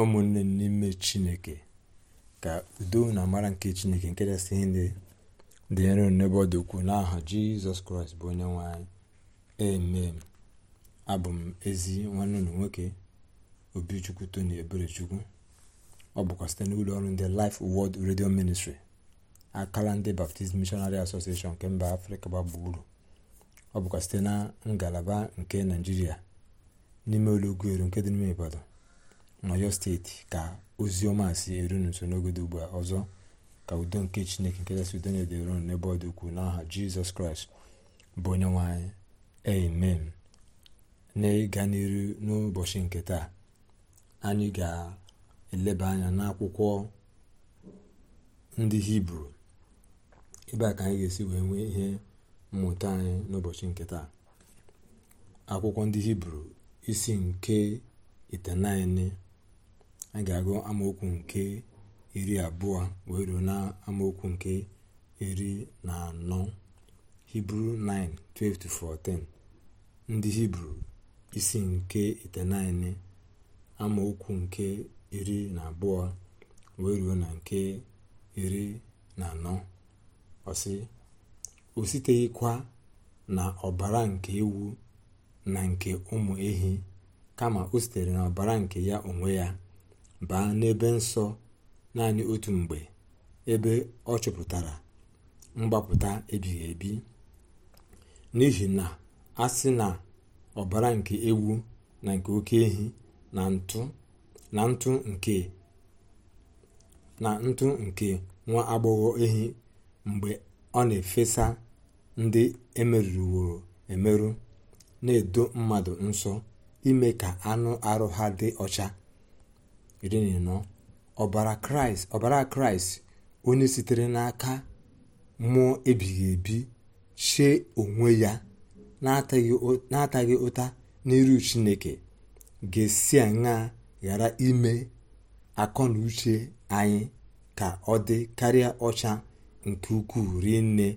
ụmụnne n'ime chineke ka udo na amara nke chineke nke kachasị ihe ndị dị nro n'ebe ọ dị ukwuu n'aha jizọs kraịst bụ onye nwanyị e amen abụ m ezi nwanne ụlọ nwoke obichukwu tony eberechukwu ọ bụkwa site n'ụlọ ọrụ ndị life wọd redio ministri akala ndị baptist missionary association nke mba afrịka gba gburugburu ọ bụkwa site na ngalaba nke naijiria n'ime ụlọ nke dị n'ime ibadan n'ọyọ steeti ka ozi ọma si eru n'uso n'oge dị ugbu a ọzọ ka udo nke chineke nke kasị udo na-edere unu n'ebe ọ dị ukwuu n'aha jizọs kraịst bụ onye nwe anyị amen na-ịga n'iru n'ụbọchị nke taa anyị ga-eleba anya n'akwụkwọ ndị hibru ebe a ka anyị ga-esi wee nwee ihe mmụta anyị n'ụbọchị nke taa akwụkwọ ndị hibru isi nke itenaine a ga-agụ amaokwu nke iri abụọ wee ruo na amaokwu nke iri na anọ hibru 9:12-14 ndị hibru isi nke itenaine amaokwu nke iri na abụọ wee ruo na nke iri na anọ ọsị o siteghịkwa na ọbara nke ewu na nke ụmụ ehi kama o sitere na ọbara nke ya onwe ya baa n'ebe nsọ naanị otu mgbe ebe ọ chụpụtara mgbapụta ebighị ebi n'ihi na a sị na ọbara nke ewu na nke oke ehi na ntụ na ntụ nke nwa agbọghọ ehi mgbe ọ na-efesa ndị emerụworo emerụ na-edo mmadụ nsọ ime ka anụ arụ ha dị ọcha iri ọbara kraịst onye sitere n'aka mmụọ ebighị ebi chee onwe ya na-ataghị ụta n'iru chineke ga-esi aṅa ghara ime akọ na uche anyị ka ọ dị karịa ọcha nke ukwuu rinne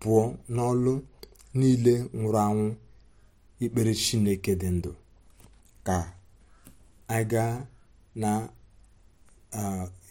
pụọ n'ọlụ niile nwụrụ anwụ ikpere chineke dị ndụ ka anyị gaa. na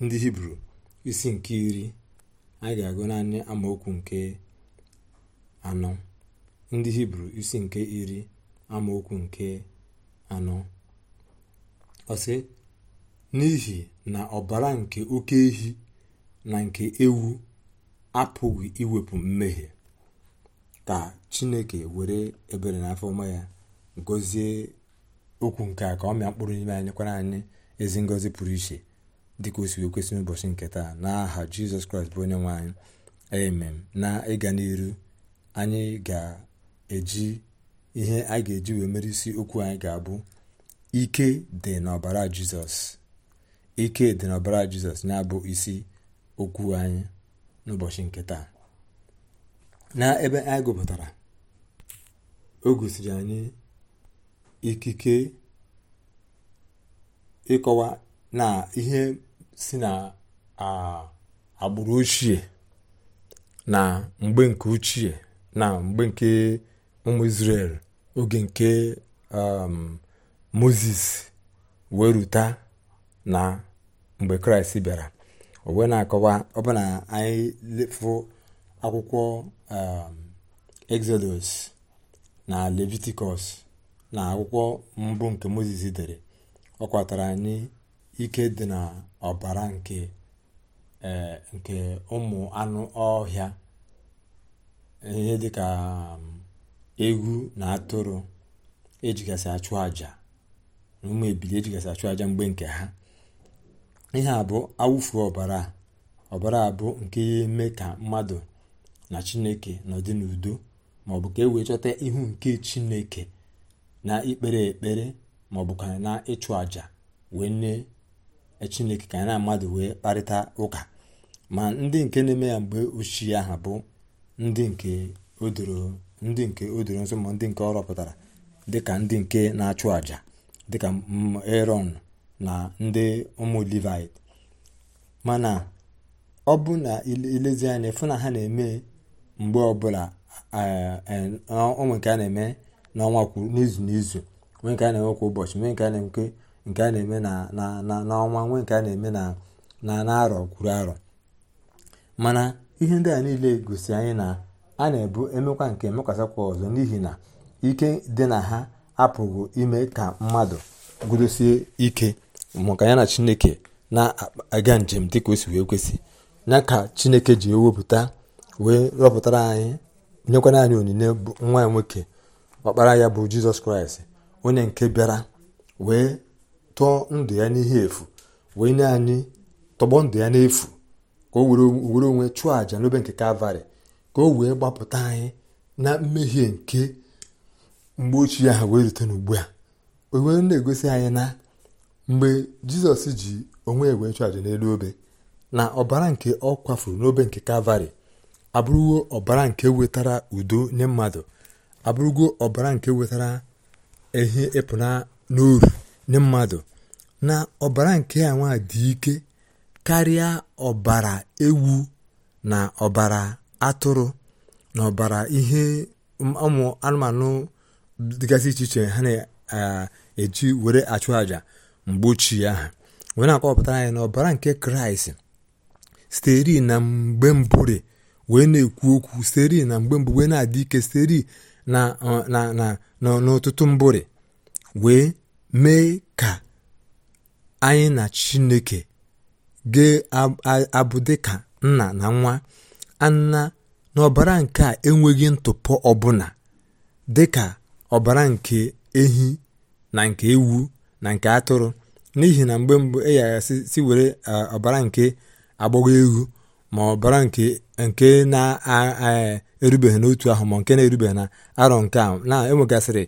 ndị hibru isi nke iri anyị ga-agụ naanị amaokwu nke anọ ndị hibru isi nke iri amaokwu nke anọ ọsị n'ihi na ọbara nke oke ehi na nke ewu apụghị iwepụ mmehie ka chineke were ebere na afọ ọma ya gọzie okwu nke a ka ọ mịa mkpụrụ n'ime anyị nyekwara anyị ezi ngọzi pụrụ iche dịka o si kwesị n'ụbọchị nke taa n'aha jizọs kraịst bụ onye nwe anyị amen na ịga n'iru anyị ga-eji ihe a ga-eji wee mere isi okwu anyị ga-abụ ike dị n'ọbara jizọs ike dị n'ọbara jizọs na-abụ isi okwu anyị n'ụbọchị nke taa na ebe anyị gụpụtara o gosiri anyị ikike ịkọwa na ihe si na agbụrụ ochie na mgbe nke ochie na mgbe nke ụmụ israel oge nke um, moses wee ruta na mgbe kraịst bịara o na-akọwa ọbụna anyị lefụ akwụkwọ um, exodus na leviticus na akwụkwọ mbụ nke moses dere ọ kwatara anyị ike dị na ọbara nke eh, ụmụ anụ ọhịa ihe dịka um, egwu na atụrụ ejigasị achụ aja na ụmụ ebili ejigasị achụ aja mgbe nke ha ihe a bụ awụfu ọbara ọbara bụ nke ya eme ka mmadụ na chineke nọdị n'udo maọbụ ka e wee chọta ihu nke chineke na ikpere ekpere ma ọ bụ ka na ịchụ àjà wee nne chineke ka na mmadụ wee kparịta ụka ma ndị nke na-eme ya mgbe ochie aha bụ ndị nke odoro ndị nke o nso ma ndị nke ọ rọpụtara dịka ndị nke na-achụ àjà dịka eron na ndị ụmụ livit mana ọ bụ na ilezi anya fụ na ha na-eme mgbe ọbụla ụmụ nke a na-eme n'ọnwa kwuru n'izu n'izu nwee nke a na-enwe kwa ụbọchị nwee nke a na-enwe nke a na-eme n'ọnwa nwee nke a na-eme na arọ kwuru arọ mana ihe ndị a niile gosi anyị na a na-ebu emekwa nke mekwasakwa ọzọ n'ihi na ike dị na ha apụghị ime ka mmadụ gudosie ike maka ya na chineke na-aga njem dị ka o si wee kwesị ya ka chineke ji ewepụta wee rọpụtara anyị nyekwana anyị onyinye nwa nwoke ọkpara ya bụ jizọs kraịst onye nke bịara wee tụọ ndụ ya n'ihe efu wee nye anyị tọgbọ ndụ ya n'efu ka o were onwe chụọ àjà n'obe nke kalvarị ka o wee gbapụta anyị na mmehie nke mgbe ochie ha wee rute n'ugbu a o na-egosi anyị na mgbe jizọs ji onwe wee chụọ àjà n'elu obe na ọbara nke ọ kwafuru n'obe nke kalvarị abụrụgo ọbara nke wetara udo nye mmadụ abụrụgo ọbara nke wetara ehi na n'oru nye mmadụ na ọbara nke ya nwa dị ike karịa ọbara ewu na ọbara atụrụ na ọbara ihe ụmụ anụmanụ dịgasị iche iche ha na-eji were achụ àjà mgbe ochie ahụ wee na-akọwapụtara anyị na ọbara nke kraịst steri na mgbe mbụre wee na-ekwu okwu steri na mgbe mbụ wee na-adị ike steri na n'ọtụtụ mbụrị wee mee ka anyị na chineke ga-abụ dịka nna na nwa anna n'ọbara nke a enweghị ntụpọ ọbụla ka ọbara nke ehi na nke ewu na nke atụrụ n'ihi na mgbe mbụ e si were ọbara nke agbọghọ ewu ma ọbara nke na-aa erubeghị n'otu ahụ ma nke na-erubeghị na arọ nke ahụ na-enwegasịrị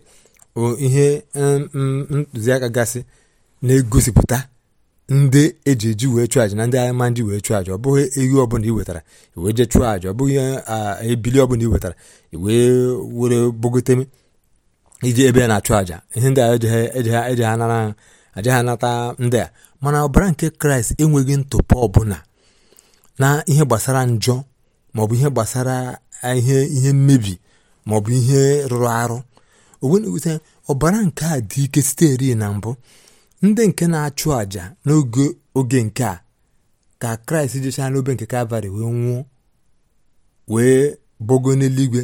ihe ntụziaka gasị na-egosipụta ndị eji eji wee chụọ aja na ndị agha ma wee chụọ aja ọ bụghị ehi ọbụla ị wetara wee je chụọ aja ọ bụghị ebili ọbụla ị wetara wee were bogote iji ebe na-achụ aja ihe ndị a eje ha nara aja ha ndị a mana ọbara nke kraịst enweghị ntụpọ ọbụla na ihe gbasara njọ maọbụ ihe gbasara ihe ihe mmebi maọbụ ihe rụrụ arụ owena ọbara nke a dị ike siteri na mbụ ndị nke na-achụ àjà n'oge oge nke a ka kraịst jechaa n'obe nke kalvarị wee nwụọ wee bogo n'eluigwe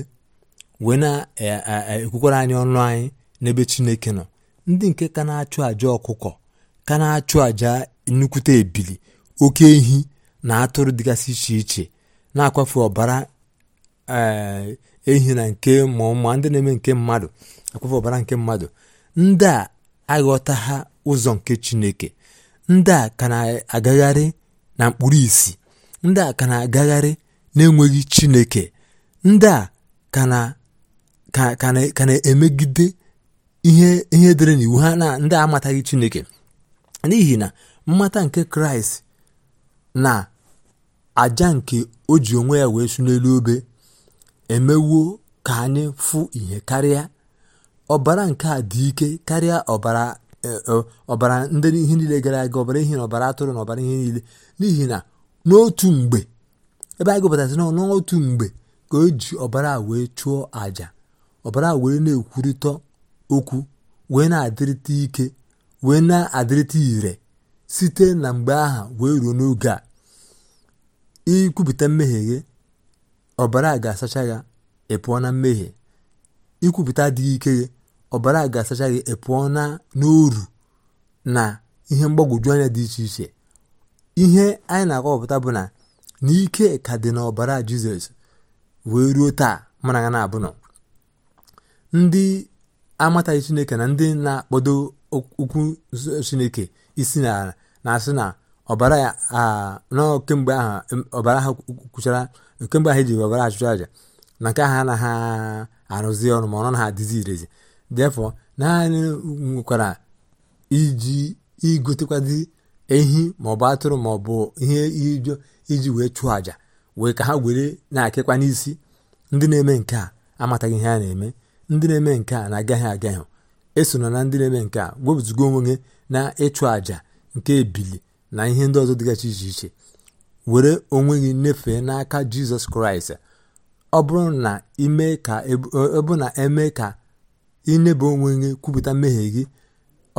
wee na-ekwukwara e, e, e, anyị ọnụ anyị n'ebe chineke nọ ndị nke ka na-achụ àjà ọkụkọ ka na-achụ àjà nnukwute ebili oke ehi na atụrụ dịgasị iche iche na-akwafe ọbara Eh, ehi na nke ma ndị na-eme nke mmadụ akwafe ọbara nke mmadụ ndị a aghọta ha ụzọ nke chineke ndị a ka na-agagharị na mkpụrụ isi ndị a ka na-agagharị na-enweghị chineke ndị a ka na-emegide ihe dere n'iwu ha na ndị a amataghị chineke n'ihi na mmata nke kraịst na aja nke o ji onwe ya wee su n'elu obe emewuo ka anyị fụ ihe karịa ọbara nke a dị ike karịa ọbara e, e, ọbara ndị ihe niile gara aga ọbara ihe na ọbara atụrụ na ọbara ihe niile n'ihi na n'otu mgbe ebe anyị gụpụtasị na n'otu mgbe ka o ji ọbara wee chụọ àjà ọbara wee na-ekwurịta okwu wee na-adịrịta ike wee na-adịrịta ire site na mgbe aha wee ruo n'oge a ikwupụta mmehie ọbara ga-asacha ya na mmehie ikwupụta adịghị ike gị ọbara ga-asacha gị ị na n'oru na ihe mgbagwoju anya dị iche iche ihe anyị na akọpụta bụ na n'ike ka dị na ọbara jizọs wee ruo taa mana ya na-abụnọ ndị amataghị chineke na ndị na-akpọdo okwu chineke isi na-asị na ọbara ya na kemgbe ahụ ọbara ahụ kwuchara nke mgbe ahụ e ji webara achụchụ aja na nke ahụ anaghị arụzi ọrụ ma ọrụ na ha adịzi irezi defọ naanị nwekwara iji igotekwazi ehi maọbụ atụrụ maọbụ ihe ijo iji wee chụọ àjà wee ka ha were na-akịkwa n'isi ndị na-eme nke a amataghị ihe a na-eme ndị na-eme nke a na-agaghị agaghị esona na ndị na-eme nke a wepụtụgo onwe gị na ịchụ àja nke ebili na ihe ndị ọzọ dịgachi iche iche were onwe gị nyefee n'aka jizọs kraịst ọ bụrụ na ime ka ebu na eme ka ịnyebe onwe gị kwupụta mmehie gị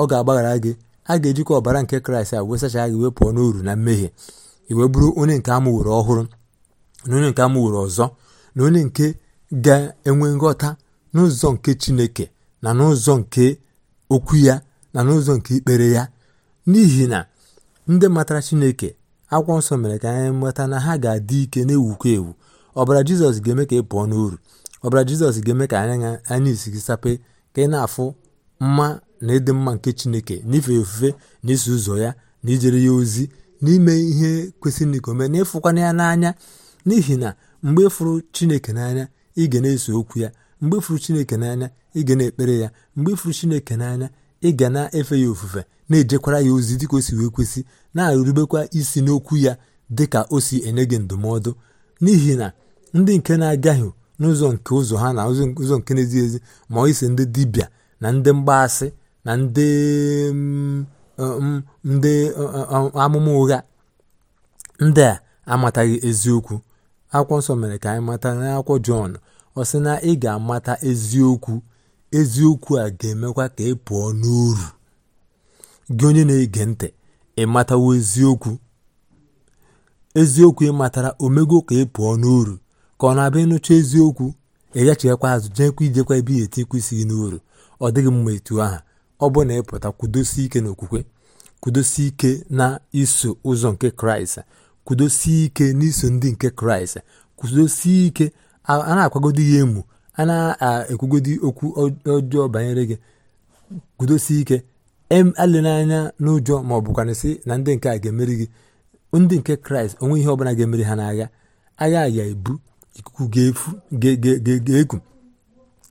ọ ga-agbaghara gị a ga-ejikwa ọbara nke kraịst a wee gị wee pụọ n'uru na mmehie iwe bụrụ onye nke were ọhụrụ na onye nke were ọzọ na onye nke ga-enwe nghọta n'ụzọ nke chineke na n'ụzọ nke okwu ya na n'ụzọ nke ikpere ya n'ihi na ndị matara chineke akwụkwọ nsọ mere ka anyị nweta na ha ga-adị ike na-ewukwa ewu ọbara jizọs ga-eme ka ị pụọ n'uru ọbara jizọs ga-eme ka anya anya isi gị sape ka ị na-afụ mma na ịdị mma nke chineke n'ife ofufe na iso ụzọ ya na ijere ya ozi n'ime ihe kwesịrị ikome na ịfụkwana ya n'anya n'ihi na mgbe fụrụ chineke n'anya ị ga na-eso okwu ya mgbe fụrụ chineke n'anya ị ga na-ekpere ya mgbe fụrụ chineke n'anya ị ga na-efe ya ofufe na-ejekwara ya ozi dịka o si wee kwesị na-arubekwa isi n'okwu ya dịka o si enye gị ndụmọdụ n'ihi na ndị nke na-agaghị n'ụzọ nke ụzọ ha na ụzọ nke na-ezighị ezi ma ọ isi ndị dibịa na ndị mgbaasị na ndị mm, mm, ndị mm, amụma ụgha ndị a amataghị eziokwu akwụkwọ nsọ mere ka anyị mata n'akwụkwọ jọn ọ sị na ị ga-amata eziokwu eziokwu a ga-emekwa ka ị pụọ n'uru gị onye na-ege ntị ịmatawo eziokwu eziokwu ịmatara omego ka ị pụọ n'uru ka ọ na-abịa ịnụcha eziokwu ịghachikwa azụ jeekwa ijekwa ebe ihe eti kwesịghị n'uru ọ dịghị mma etu aha ọ bụ na ịpụta kwudosi ike n'okwukwe kwudosi ike na iso ụzọ nke kraịst kwudosie ike n'iso ndị nke kraịst kwudosie ike a na-akwagodo ya emu a na-ekwugodi okwu ọjọọ banyere gị kwudosi ike alena anya n'ụjọ ma ọ bụkwana sị na ndị nke a ga-emeri gị ndị nke kraịst onwe ihe ọbụla ga-emeri ha n'agha agha ya ebu ikuku ga-eku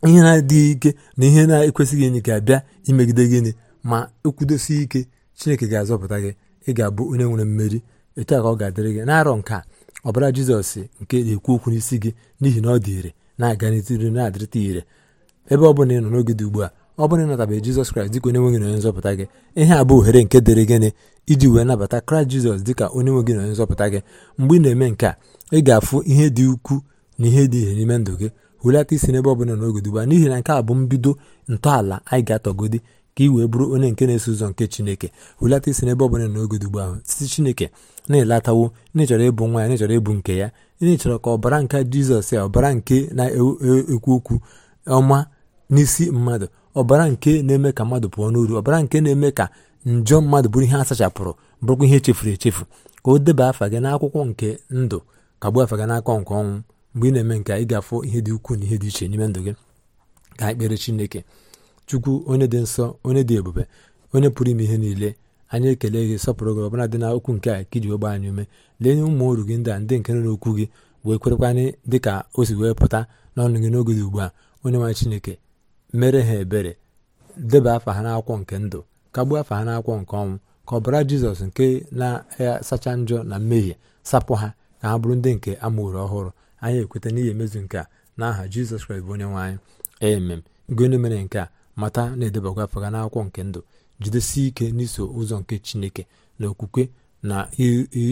ihe na-adịghị ike na ihe na-ekwesịghị enyi ga-abịa imegide gịnị ma ekwudosi ike chineke ga-azọpụta gị ị ga-abụ onye nwere mmeri etu a ka ọ ga-adịrị gị n'arọ nke a ọbara jizọs nke na-ekwu okwu n'isi gị n'ihi na ọ dị ire na-aganịta iru na-adịrịta ire ebe ọ bụla ị nọ n'oge dị ugbu a ọ bụla ị natabeghị Jizọs Kraịst dịka onye nwe gị na onye nzọpụta gị ihe a bụ ohere nke dịrị gịnị iji wee nabata Kraịst Jizọs dịka onye nwe gị na onye nzọpụta gị mgbe ị na-eme nke a ị ga-afụ ihe dị ukwuu na ihe dị ihe n'ime ndụ gị hulata isi n'ebe ọ bụla n'oge dị ugbu a n'ihi na nke a bụ mbido ntọala anyị ga-atọgodi ka ị wee bụrụ onye nke na-eso ụzọ nke Chineke hulata isi n'ebe ọ bụla n'oge dị ugbu ahụ site Chineke na-elatawo n'ịchọrọ ịbụ nwa ya n'ịchọrọ ịbụ nke ya ị chọrọ ka ọbara nke jizọs ya ọbara nke na-ekwu e-, okwu ọma n'isi mmadụ ọbara nke na-eme ka mmadụ pụọ n'uru ọbara nke na-eme ka njọ mmadụ bụrụ ihe sachapụrụ bụrụkwa ihe echefuru echefu ka o deba afa gị n'akwụkwọ nke ndụ ka gbuo afa gị n'aka nke ọnwụ mgbe ị na-eme nke ị ga-afụ ihe dị ukwuu na ihe dị iche n'ime ndụ gị ka anyị kpere chineke chukwu onye dị nsọ onye dị ebube onye pụrụ ime ihe niile anyị ekele gị sọpụrụ gị ọbụla dị na okwu nke a kiji iji wee anyị ume lee nye ụmụ uru gị ndị a ndị nke nọ n'okwu gị wee kwerekwanye dị ka o si wee pụta n'ọnụ gị n'oge dị ugbu a onye nwanyị chineke mere ha ebere deba afa ha n'akwụkwọ nke ndụ kagbuo afa ha n'akwụkwọ nke ọnwụ ka ọbara jizọs nke na-asacha njọ na mmehie sapụ ha ka ha bụrụ ndị nke amụrụ ọhụrụ anyị ekweta n'ihi emezu nke a aha jizọs kraịst bụ onye nwaanyị anyị emem gị onye mere nke a mata na-edebakwa afọ ga n'akwụkwọ nke ndụ jidesie ike n'iso ụzọ nke chineke na okwukwe na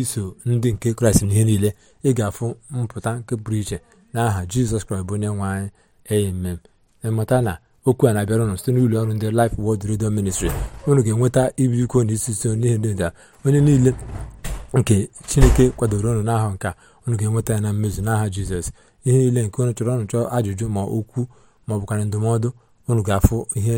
iso ndị nke kraịst n'ihe niile ị ga-afụ mpụta nke pụrụ iche n'aha aha jizọs kraịst bụ onye nwe anyị amen ịmata na okwu a na-abịara ụnụ site n'ụlọ ọrụ ndị Life Word redio Ministry ụnụ ga-enweta ibi iko na isi so n'ihe onye niile nke chineke kwadoro ọnụ nke nka ụnụ ga-enweta ya na mmezu n'aha jizọs ihe niile nke ụnụ chọrọ ọnụ chọọ ajụjụ ma okwu ma ọ ndụmọdụ unu ga-afụ ihe